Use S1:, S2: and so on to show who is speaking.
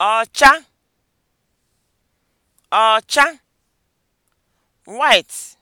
S1: ọcha ọcha white